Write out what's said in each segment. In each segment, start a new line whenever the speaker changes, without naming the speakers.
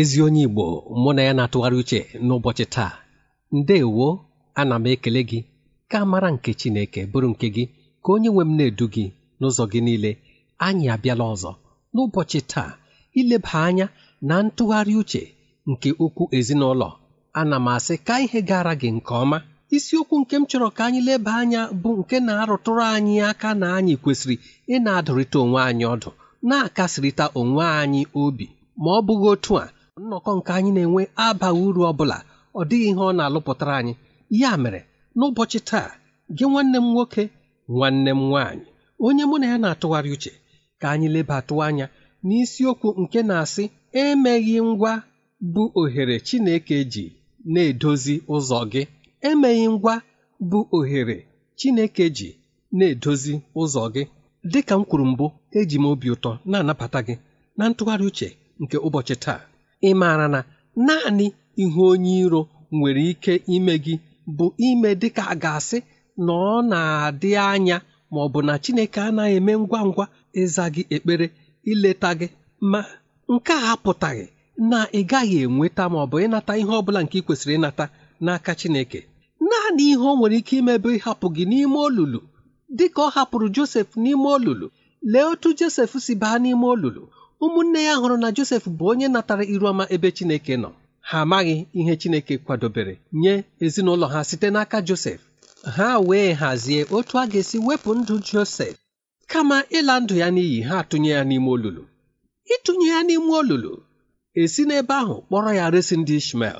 ezi onye Igbo mụ na ya na-atụgharị uche n'ụbọchị taa Ndewo ana m ekele gị ka mara nke Chineke bụrụ nke gị ka onye nwe m na-edu gị n'ụzọ gị niile anyị abịala ọzọ n'ụbọchị taa ileba anya na ntụgharị uche nke ukwu ezinụlọ ana m asị ka ihe gara gị nke ọma isiokwu nke m chọrọ ka anyị leba anya bụ nke na-arụtụrụ anyị aka na anyị kwesịrị ị na-adụrịta onwe anyị ọdụ na-akasịrịta onwe anyị obi ma ọ bụghị otu a nnọkọ nke anyị na-enwe abaghị uru ọ bụla ọ dịghị ihe ọ na-alụpụtara anyị ya mere n'ụbọchị taa gị nwanne m nwoke nwanne m nwaanyị onye mụ na ya na-atụgharị uche ka anyị lebatụ anya n'isiokwu nke na-asị emeghị ngwa bụ ohere Chineke ji na-edozi ụzọ gị emeghị ngwa bụ ohere Chineke ji na-edozi ụzọ gị dịka m kwuru mbụ eji m obi ụtọ na-anabata gị na ntụgharị uche nke ụbọchị taa ịmara na naanị ihe onye iro nwere ike ime gị bụ ime dịka a ga-asị na ọ na-adị anya ma ọ bụ na Chineke anaghị eme ngwa ngwa ịza gị ekpere ileta gị ma nke a apụtaghị na ị gaghị enweta ma ọ bụ ịnata ihe ọ bụla nke ị kwesịrị ịnata n'aka Chineke naanị ihe ọ nwere ike ime ịhapụ gị n'ime olulu dịka ọ hapụrụ Josef n'ime olulu lee otu Josef si baa n'ime olulu ụmụnne ya hụrụ na Josef bụ onye natara iru ọma ebe Chineke nọ ha amaghị ihe Chineke kwadobere nye ezinụlọ ha site n'aka Josef ha wee hazie otu a ga-esi wepụ ndụ Josef kama ịla ndụ ya n'iyi ha tụnye ya n'ime olulu ịtụnye ya n'ime olulu esi n'ebe ahụ kpọrọ ya resi ndị Ishmel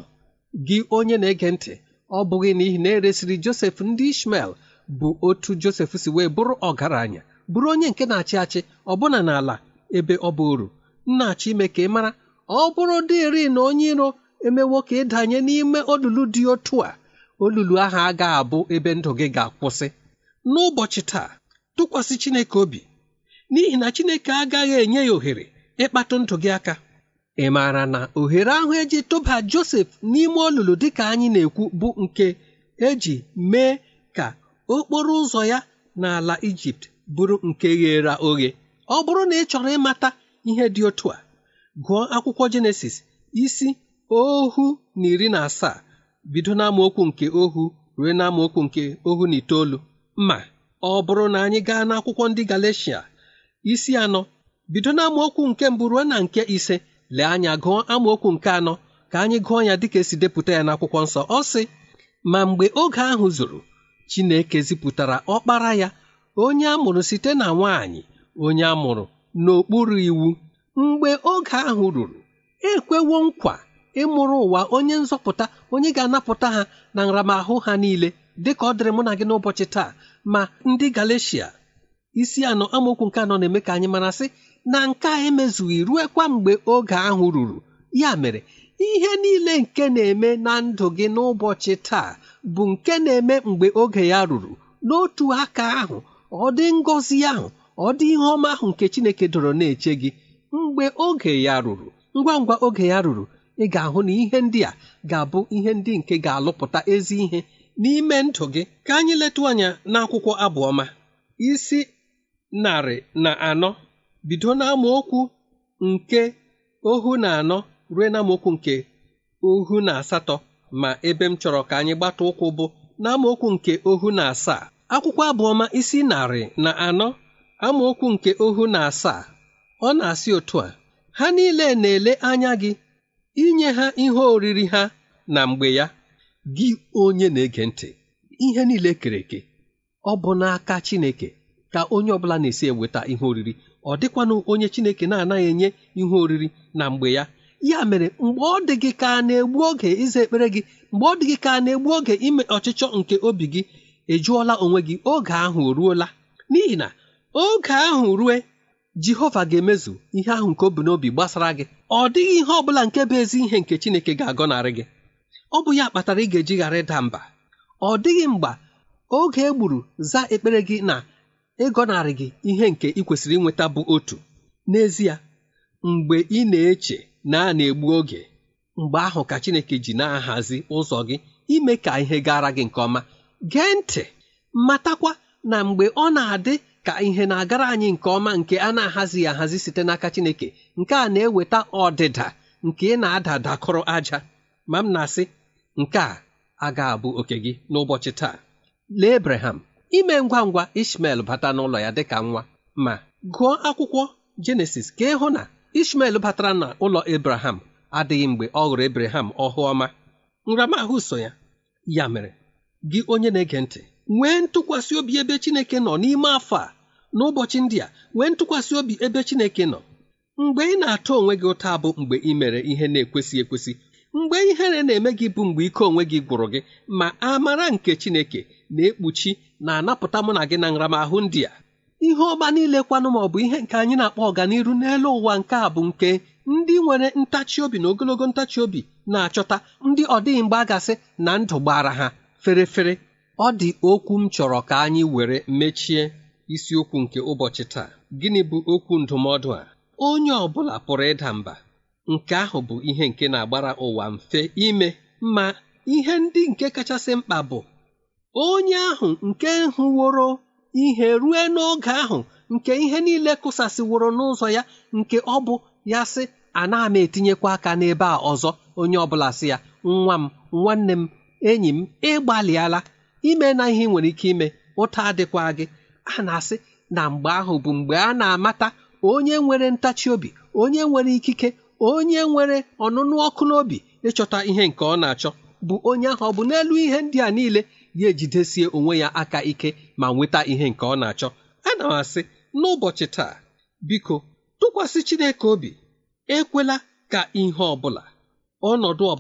gị onye na-ege ntị ọ bụghị n'ihi na eresiri Josef ndị Ishmel bụ otu Josef si wee bụrụ ọgaranya bụrụ onye nke na-achị achị ọbụna n'ala ebe ọ bụ uru nna-achọ ime ka ị mara ọ bụrụ dịri na onye iro emewo ka ịdanye n'ime olulu dị otu a olulu ahụ a ga-abụ ebe ndụ gị ga-akwụsị n'ụbọchị taa tụkwasị Chineke obi n'ihi na Chineke agaghị enye ya ohere ịkpatụ ndụ gị aka ị maara na ohere ahụ eji tụba Josef n'ime olulu dịka anyị na-ekwu bụ nke eji mee ka okporo ụzọ ya n'ala Ijipt bụrụ nke ghere oghe ọ bụrụ na ị chọrọ ịmata ihe dị otu a gụọ akwụkwọ jenesis isi ohu na iri na asaa bido n'amaokwu nke ohu ruo n'amaokwu nke ohu na itoolu ma ọ bụrụ na anyị gaa n'akwụkwọ ndị galecia isi anọ bido n'amaokwu nke mbụ ruo na nke ise lee anya gụọ amaokwu nke anọ ka anyị gụọ ya dịka esi depụta ya n'akwụkwọ nsọ ọ sị ma mgbe oge ahụ zuru Chineke zipụtara ọkpara ya onye a mụrụ site na nwaanyị onye a mụrụ n'okpuru iwu mgbe oge ahụ ruru ekwewo nkwa ịmụrụ ụwa onye nzọpụta onye ga-anapụta ha na nramahụ ha niile dịka ọ dịrị mụ na gị n'ụbọchị taa ma ndị Galeshia isi anọ amaokwu nke anọ na-eme ka anyị mara sị na nke a emezughị ruekwa mgbe oge ahụ ruru ya mere ihe niile nke na-eme na ndụ gị n'ụbọchị taa bụ nke na-eme mgbe oge ya ruru n'otu aka ahụ ọ dị ngọzi ahụ ọ dị ihe ọma ahụ nke chineke dọrọ na-eche gị mgbe oge ya ruru ngwa ngwa oge ya ruru ị ga-ahụ na ihe ndị a ga-abụ ihe ndị nke ga-alụpụta ezi ihe n'ime ndụ gị ka anyị letụ anya n'akwụkwọ abụọma isi narị na anọ bido n'amaokwu nke ohu na anọ ruo n'amaokwu nke ohu na asatọ ma ebe m chọrọ ka anyị gbata ụkwụ bụ n'amaokwu nke ohu na asaa akwụkwọ abụọma isi narị na anọ amaokwu nke ohu na asaa ọ na-asị otu a ha niile na-ele anya gị inye ha ihe oriri ha na mgbe ya gị onye na-ege ntị ihe niile kere eke ọ bụ n'aka Chineke ka onye ọbụla na-esi eweta ihe oriri ọ dịkwanụ onye Chineke na-anaghị enye ihe oriri na mgbe ya ya mere mgbe ọ dị gị ka na-egbu oge ịza ekpere gị mgbe ọ dị gị ka na-egbu oge ime ọchịchọ nke obi gị ejụọla onwe gị oge ahụ o ruola n'ihi na oge ahụ rue jehova ga-emezu ihe ahụ nke o n'obi gbasara gị ọ dịghị ihe ọ bụla nke bụ ezi ihe nke chineke ga-agọnarị gị ọ bụ ya kpatara ị ga-eji ghara ịda mba ọ dịghị mgba oge e gburu za ekpere gị na ịgọnarị gị ihe nke ị kwesịrị inweta bụ otu n'ezie mgbe ị na-eche na a na-egbu oge mgbe ahụ ka chineke ji na-ahazi ụzọ gị ime ka ihe gara gị nke ọma gee ntị matakwa na mgbe ọ na-adị ka ihe na-agara anyị nke ọma nke a na-ahazighị ahazi site n'aka Chineke nke a na-eweta ọdịda nke ị na-ada dakọrọ aja ma m na-asị nke a a ga-abụ oke gị n'ụbọchị taa lee Abraham ime ngwa ngwa Ishmel bata n'ụlọ ya dịka nwa ma gụọ akwụkwọ Jenesis ka ịhụ na Ishmel batara na ụlọ Abraham adịghị mgbe ọ hụrụ Abraham ọhụ ọma nramahụ so ya ya mere gị onye na-ege ntị nwee ntụkwasị obi ebe Chineke nọ n'ime afọ a n'ụbọchị ndị a nwee ntụkwasị obi ebe Chineke nọ mgbe ị na atụ onwe gị ụta bụ mgbe ị mere ihe na-ekwesị ekwesị mgbe ihere na-eme gị bụ mgbe ike onwe gị gwụrụ gị ma amara nke Chineke na-ekpuchi na-anapụta mụ na gị na nramahụ ndị a ihe ọma niile kwanụ ma ọ bụ ihe nke anyị na-akpọ ọganiru n'elu ụwa nke a bụ nke ndị nwere ntachi obi na ogologo ntachi obi na-achọta ndị ọ dịghị mgbe na ndụ gbara ha ferefere ọ dị okwu m chọrọ ka anyị were mechie isiokwu nke ụbọchị taa gịnị bụ okwu ndụmọdụ a onye ọ bụla pụrụ ịda mba nke ahụ bụ ihe nke na-agbara ụwa mfe ime ma ihe ndị nke kachasị mkpa bụ onye ahụ nke hụworo ihe rue n'oge ahụ nke ihe niile kụsasịworo n'ụzọ ya nke ọ bụ ya sị ana m etinyekwa aka n'ebe a ọzọ onye ọbụla sị ya nwa m nwanne m enyi m ịgbalịala ime na ihe nwere ike ime ụta adịkwa gị a na-asị na mgbe ahụ bụ mgbe a na-amata onye nwere ntachi obi onye nwere ikike onye nwere ọnụnụ ọkụ n'obi ịchọta ihe nke ọ na-achọ bụ onye ahụ ọ bụ n'elu ihe ndị a niile ya ejidesie onwe ya aka ike ma nweta ihe nke ọ na-achọ ana m asị n'ụbọchị taa biko tụkwasị Chineke obi ekwela ka ihe ọ ọnọdụ ọ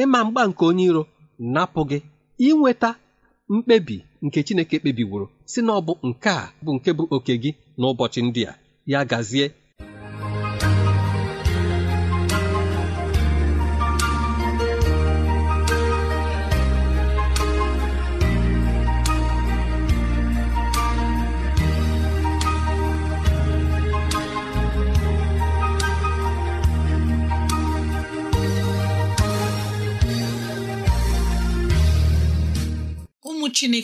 ịma mgba nke onye iro napụ gị inweta mkpebi nke chineke kpebiworo si na ọ bụ nke a bụ nke bụ oke gị n'ụbọchị ndị a ya gazie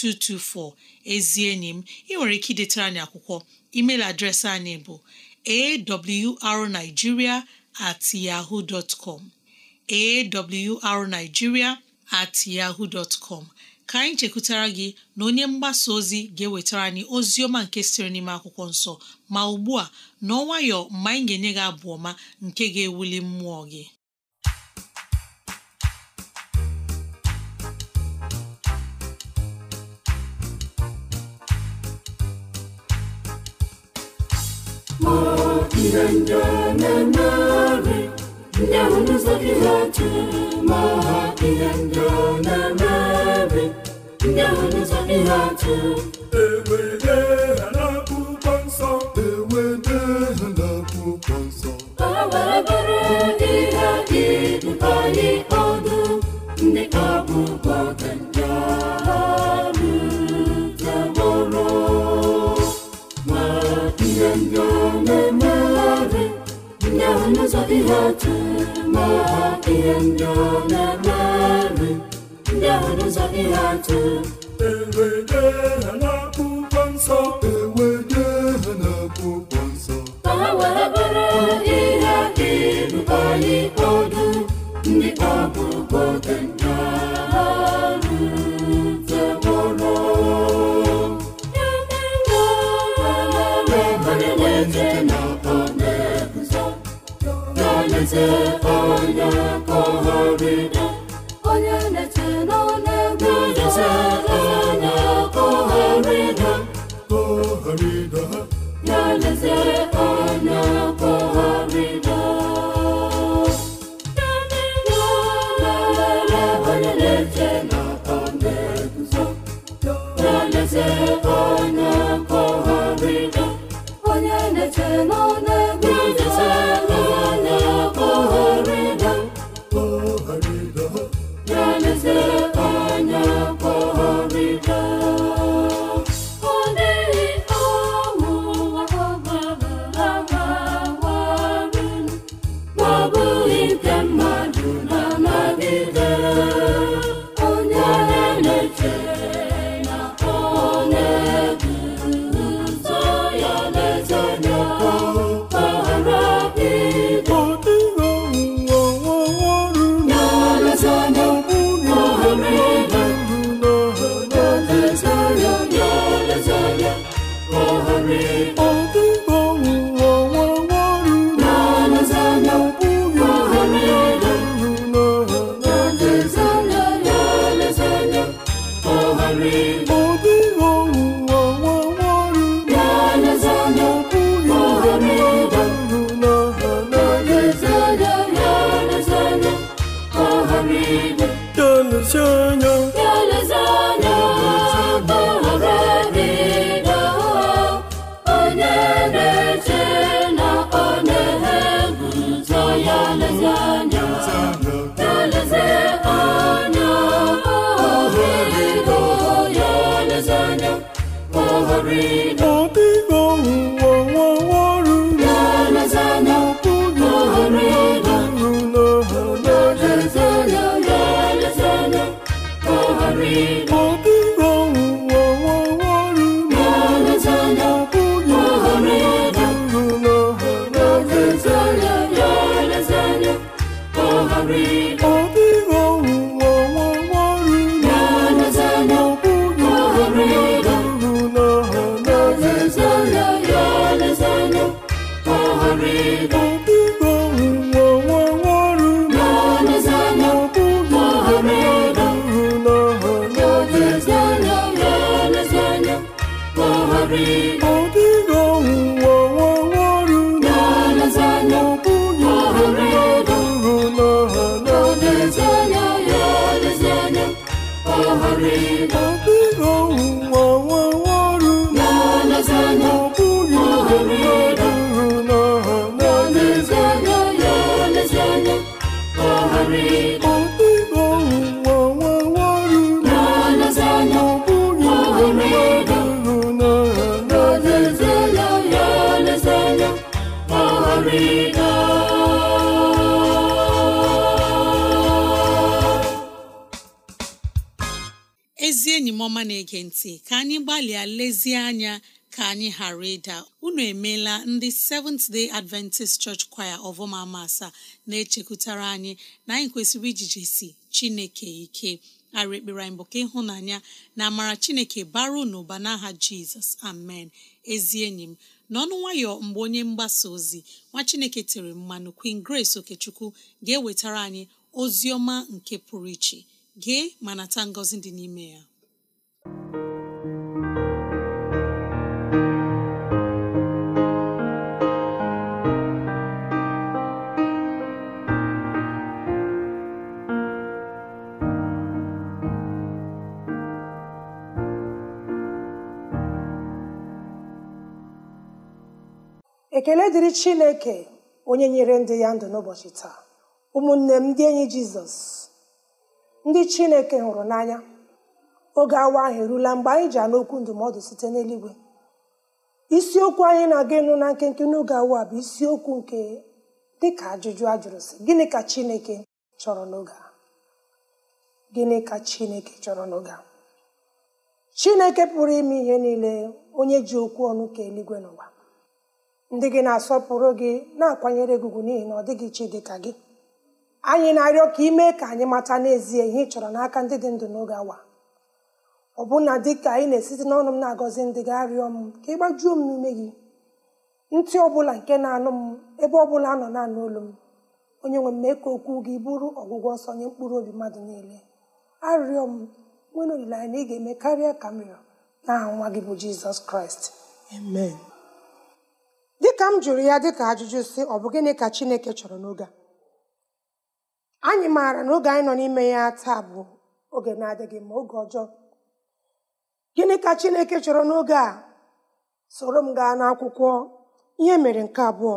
7224 ezi enyi m ị nwere ike idetara anyị akwụkwọ email adreesị anyị bụ arigiria at yaho com at yaho com ka anyị chekwutara gị na onye mgbasa ozi ga-ewetara anyị ozi ọma nke siri n'ime akwụkwọ nsọ ma ugbu a n'ọnwayọ mgbe anyị ga-enye gị abụ ọma nke ga-ewuli mmụọ gị
ndendonanare ndahundu zake ndị maha ndendonanare ndahundu ha n'akwụkwọ nsọ nsọ ihe ndị ọ na-eme ndị ahụ n'ụzọ ihe atụ Igbo Igbo ụwa nwa ọrụ
ọma na-ege ntị ka anyị gbalịa lezie anya ka anyị ghara ịda unu emeela ndị Seventh Day Adventist Church Choir ọvọmama asaa na-echekwutara anyị na anyị kwesịrị ijijesi Chineke ike ara ekpere anyị bụ ka ịhụnanya na amara Chineke bara n'ụba n'aha Jizọs amen ezi enyi m n'ọnụ nwayọ mgbe onye mgbasa ozi nwa Chineke tere mmanụ Queen Grace Okechukwu ga-ewetara anyị ozi ọma nke pụrụ iche gee ma ta ngọzi dị n'ime ya
ekele dịrị chineke onye nyere ndị ya ndụ n'ụbọchị taa ụmụnne m ndị enyi jizọs ndị chineke hụrụ n'anya oge awa ahụ erula mgbe anyị ji anụ okwu ndụmọdụ site n'eluigwe isiokwu anyị na-aga ịnụ na nkenke n'oge awa bụ isiokwu nke dịka ajụjụ a jụrụ sị gịnị ka chineke chọrọ n'oge a gịnị ka chineke chọrọ n'oge chineke pụrụ ime ihe niile onye ji okwu ọnụ ka eluigwe n'ụwa ndị gị na-asọpụrụ gị na-akwanyere gị n'ihi na ọ dịghị iche dị ka gị anyị na-arịọ ka ị mee ka anyị mata n'ezie ihe ị chọrọ n'aka ndị dị ndụ n'oge awa ọbụna dị ka anyị na-esite n'ọnụ m na-agọzi ndị gị arịọ m ka ị gbajuo m n'ime gị ntị ọbụla nke na-anụ m ebe ọbụla anọ nọ na-anụ olu m onye nwe m mee ka okwu gị bụrụ ọgwụgwọ ọsọ nye mkpụrụ obi mmadụ niile arịọ m nwere olileanya na ị ga-eme karịa ka m rịọ n'aha nwa gị bụ jizọs kraịst amen dịka m jụrụ ya dịka ajụjụ si ọ bụ gịnị ka chineke chọrọ n'oge a anyị maara na oge anyị nọ n'ime ya taa bụ oge na-adịghị ma oge ọjọọ gịnị ka chineke chọrọ n'oge a soro m gaa n'akwụkwọ ihe mere nke abụọ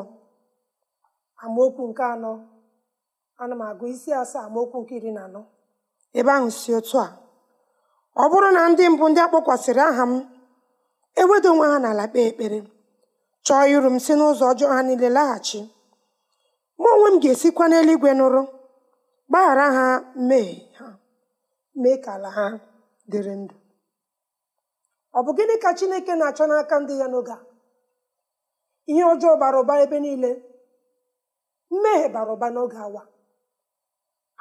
amaokwu nke anọ ana m agụ isi asaa amaokwu nke iri na anọ ebe ahụ si otu a ọ bụrụ na ndị mbụ ndị akpọkwasịrị aha m ewedo onwe ha n'ala kpee ekpere chọọ iru m si n'ụzọ ọjọọ ha niile laghachi mụ onwe m ga-esikwa n'eluigwe nụrụ gbaghara ha mee ha mee ka ala ha dịrị ndụ ọ bụ gịnị ka chineke na-achọ n'aka ndị ya n'oge a ihe ọjọọ bara ụba ebe niile mmehie bara ụba n'oge awa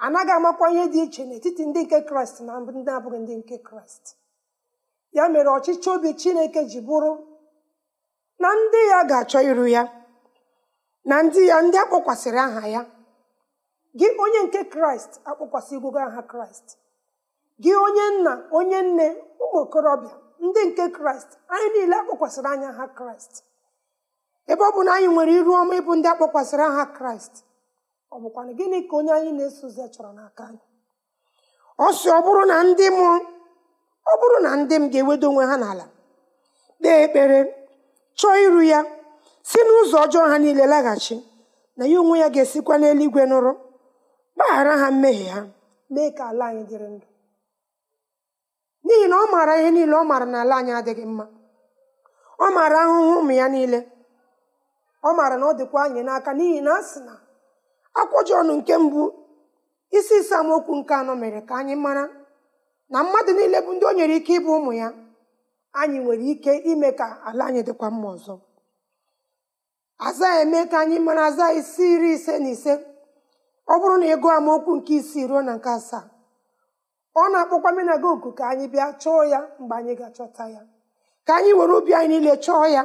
anaghị amakwa ihe dị iche n'etiti ndị nke kraịst na ndị abụghị ndị nke kraịst ya mere ọchịchị obi chineke ji bụrụ na ndị ya ga-achọ iru ya na ndị ya ndị akpọkwasịrị aha ya gị onye nke kraịst akpọkwasịgwugo aha kraịst gị onye nna onye nne ụmụ okorobịa ndị nke kraịst anyị niile akpọkwasịrị anya aha kraịst ebe ọ bụ na anyị nwere iru ọma ịbụ ndị akpọkwasịrị aha kraịst ọ bụkwa gịnị ka onye anyị na-eso ụzọ chọrọ n'aka anyị ọ ọ bụrụ na ndị ọ bụrụ na ndị m ga-ewedo onwe ha n'ala kpee ekpere chọọ iru ya si n'ụzọ ọjọọ ha niile laghachi na ya onwe ya ga-esikwa n'eluigwe nụrụ gbaghara ha mmehie ha mee ka ala anyị dịrị ndụ n'ihi na ọ maara ihe niile ọ maara na ala anyị adịghị mma ọ maara ahụhụ ụmụ ya niile ọ maara na ọ dịkwa anyị n'aka n'ihi na a sị na akwụjọọnụ nke mbụ isi ise nke anọ mere ka anyị mara na mmadụ niile bụ ndị o nyere ike ịbụ ụmụ ya anyị nwere ike ime ka ala anyị dịkwa mma ọzọ aza eme ka anyị mara aza isi iri ise na ise ọ bụrụ na ị amaokwu nke isii ruo na nke asaa ọ na-akpọkwa menaga oku ka anyị bịa chọọ ya mgbe anyị ga-achọta ya ka anyị were obi anyị niile chọọ ya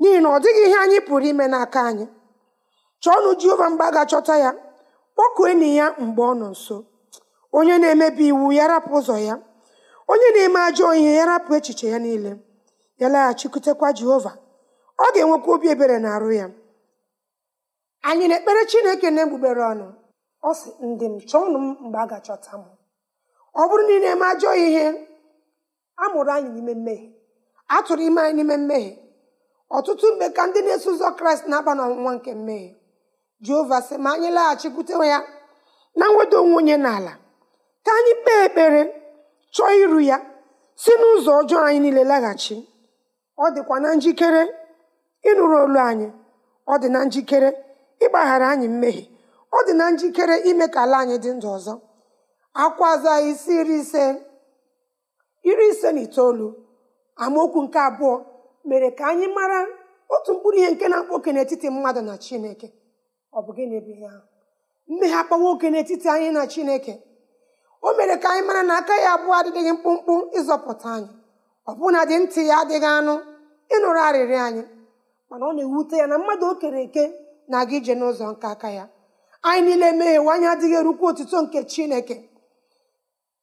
n'ihi na ọ dịghị ihe anyị pụrụ ime n'aka anyị chọọnụ Jehova mgbe a ga-achọta ya kpọkuo enyi ya mgbe ọ nọ nso onye na-emebi iwu ya rapụ ụzọ ya onye na-eme ajọ ihe ya rapụ echiche ya niile ya laghachikwutekwa jehova ọ ga-enwekwa obi ebere na arụ ya anyị na-ekpere chineke na-egbugbere ọnụ ọ sị ndị m chọọnụ m mgbe a ga-achọta m ọ bụrụ na ị na-eme ajọ ihe a mụrụ anyị n'ime mmehie a tụrụ ime anyị n'ime mmehie ọtụtụ mgbe ka ndị na-eso ụzọ kraịst na-aba n'ọnwụnwa nke mmehie jehova sị ma anyị laghachikwute ya na nweda onwe onye n'ala ka anyị kpee ekpere chọọ iru ya si n'ụzọ ọjọọ anyị niile laghachi ọ dịkwa na njikere ịnụrụ olu anyị ọ dị na njikere ịgbaghara anyị mmehie ọ dị na njikere ime ka ala anyị dị ndụ ọzọ akwaza isi iri ise na itoolu amaokwu nke abụọ mere ka anyị mara otu mkpụrụ ihe nke na-akpa oke n'etiti mmadụ na Chineke ọ mmehie akpa nwoke n'etiti anyị na Chineke o mere ka anyị mara na aka ya abụọ adịghị mkpụmkpụ ịzọpụta anyị ọbụna dị ntị ya adịghị anụ ịnụrụ arịrị anyị mana ọ na-ewute ya na mmadụ o kere eke na-aga ije n'ụzọ nke aka ya anyị niile meghewe anyị adịghị erukwu otuto nke chineke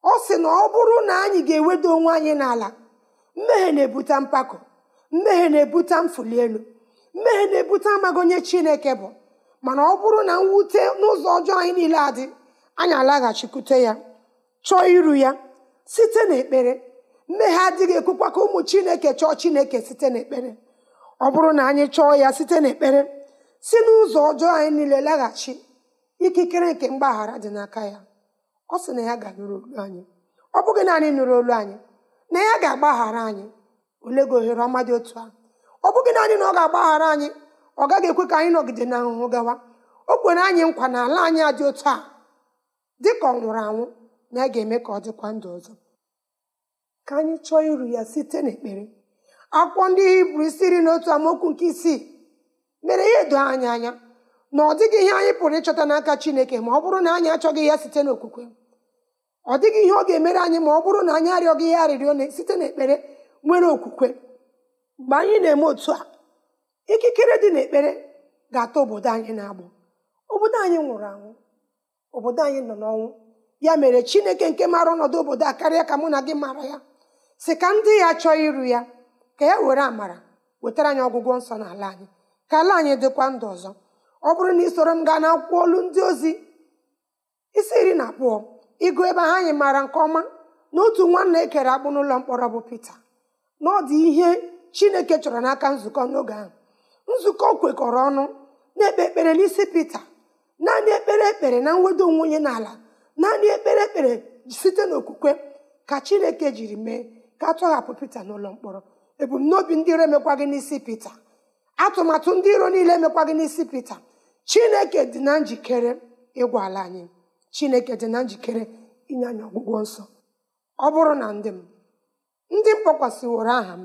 ọ sị na ọ bụrụ na anyị ga-eweda onwe anyị n'ala mmehie na-ebute mpako mmehie na-ebute mfuli elu mmehie na-ebute amaghị onye chineke bụ mana ọ bụrụ na mwute n'ụzọ ọjọọ anyị niile adị anyị alaghachikwute ya chọọ iru ya site n'ekpere mmehie adịghị ekwukwa ka ụmụ chineke chọọ chineke site n'ekpere ọ bụrụ na anyị chọọ ya site n'ekpere si n'ụzọ ọjọọ anyị niile laghachi ikikere nke mgbaghara dị n'aka ya ọ sị na ya ga-anụrụ olu anyị ọ bụghị naanị nụrụ olu anyị na ya ga-agbaghara anyị ole gị ohere ọma dị otu a ọ bụghị naanị na ọ ga-agbaghara anyị ọ gaghị ekwe ka anyị nọgide na ahụhụ gawa o kwere anyị nkwa na ala anyị dị otu a dị ka ọ nwụrụ anwụ na a ga-eme ka ọ dịkwa ndụ ọzọ ka anyị chọọ iru ya site n'ekpere akwụkwọ ndị hibru isi iri na otu amaokwu nke isii mere ya edo anyị anya na ọ dịghị ihe anyị pụrụ ịchọta n'aka chineke ma ọ bụrụ na anyị achọghị ya site n'okwukwe ọ dịghị ihe ọ ga-emere anyị ma ọ bụrụ na anyị arịọghị ya arịrịọ site n'ekpere nwere okwukwe mgbe anyị na-eme otu a ikikere dị n'ekpere ga-ata obodo anyị na-agbụ obodo anyị nwụrụ anwụ obodo anyị nọ n'ọnwụ ya mere chineke nke maara ọnọdụ obodo a karịa ka mụ na gị mara ya si ka ndị ya chọọ iru ya ka ya e were amara wetara anyị ọgwụgwọ nsọ n'ala anyị ka ala anyị dịkwa ndụ ọzọ ọ bụrụ na isoro m gaa na akwụkwọ olu ndị ozi isi iri na abụọ ịgụ ebe ha anyị maara nke ọma na otu nwanna ekere akpụ n'ụlọ mkpọrọ bụ Pita na ọ dị ihe chineke chọrọ n'aka nzukọ n'oge ahụ nzukọ kwekọrọ ọnụ na-ekpe ekpere n'isi Pita naanị ekpere ekpere na mwedo onwe onye n'ala naanị ekpere ekpere site n'okwukwe ka chineke jiri mee ka atọghapụ pita n'ụlọ mkpọrọ ebumnobi ndị iro emekwa gị n'isi pita atụmatụ ndị iro niile emekwa gị n'isi pita chineke dị na njikere ịgwa ala anyị chineke dị na njikere inye anyị ọgwụgwọ nsọ ọ bụrụ na ndị m ndị m kpọkwasịworo aha m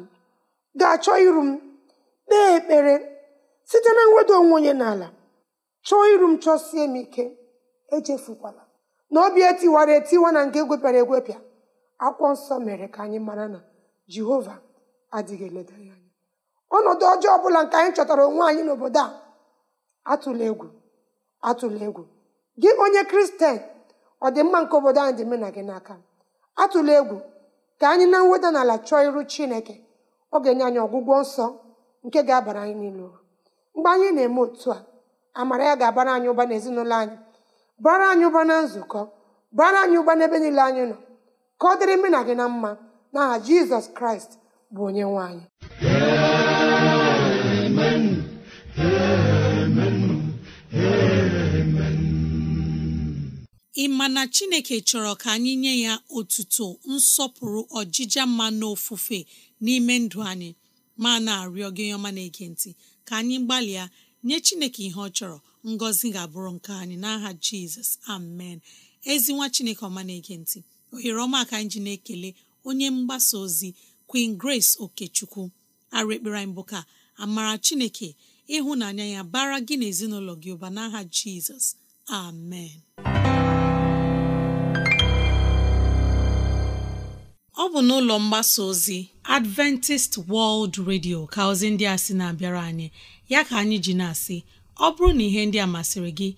ga-achọ iru m kpee ekpere site na mweda onwe onye n'ala chọọ iru m chọsie m ike echefukwala na obi etiwara etiwa na nke egwepịara egwepịa akwụkwọ nsọ mere ka anyị mara na jehova adịghị eleda ya anya ọnọdụ ọjọọ ọbụla nke anyị chọtara onwe anyị n'obodo a atụla egwu atụla egwu gị onye kristian ọdịmma nke obodo anyị dị mena gị n'aka atụla egwu ka anyị na mweda n'ala chọọ iru chineke ọ ga-enye anyị ọgwụgwọ nsọ nke ga-abara anyị niile uru mgbe anyị na-eme otu a amara ya ga-abara anyị ụba n'ezinụlọ anyị bara anyị ụba na nzukọ bara anyị ụba n'ebe niile anyị nọ ka ọ dịrị na gị na mma n'aha jizọs kraịst bụ onye nwanyị anyị
ị ma na chineke chọrọ ka anyị nye ya otuto nsọpụrụ ọjịja mma n'ofufe n'ime ndụ anyị ma na-arịọ gị ọma na-ege ntị ka anyị gbalịa nye chineke ihe ọ chọrọ ngọzi ga-abụrụ nke anyị n'aha jizọs amen ezi nwa chineke ọma na-ege ntị ohere ọma aka anyị ji na-ekele onye mgbasa ozi queen grace okechukwu ara ekpere anyị bụ ka amara chineke ịhụnanya ya bara gị n'ezinụlọ gị ụba n'aha jizọs amen ọ bụ n'ụlọ mgbasa ozi adventist world radio ka ndị a sị na-abịara anyị ya ka anyị ji na-asị ọ bụrụ na ihe ndị a masịrị gị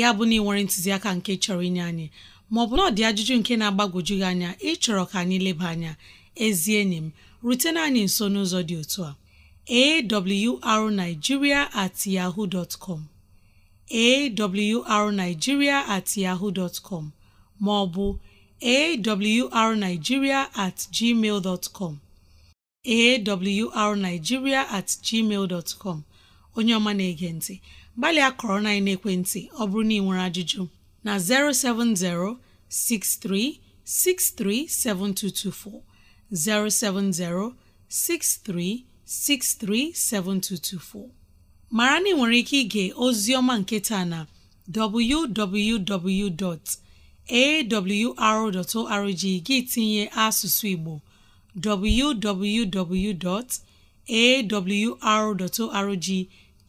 ya bụ na ị nwere ntụziaka nke chọrọ inye anyị maọbụ na ọ dị ajụjụ nke na-agbagwoju gị anya ịchọrọ ka anyị leba anya ezi enyi m rutena anyị nso n'ụzọ dị otu a arigiria at yahoo dot com awrnigeria at yahoo dot com maọbụ awrnigeria at gmail dot com awrnigeria at gmail dot com onye ọma na-ege ntị gbalịa kọrọ na ekwentị ọ bụrụ na ị nwere ajụjụ na 070 6363 7224 070 6363 7224 mara na ị nwere ike ige ozi ọma nke taa na www.awr.org gị tinye asụsụ Igbo www.awr.org